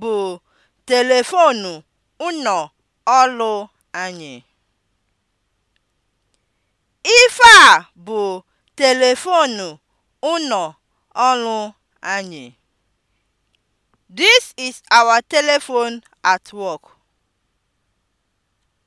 bụ telefonu ụnọ ọlụ anyị. Ife bụ telefonu ụnọ ọlụ anyị. This is our telephone at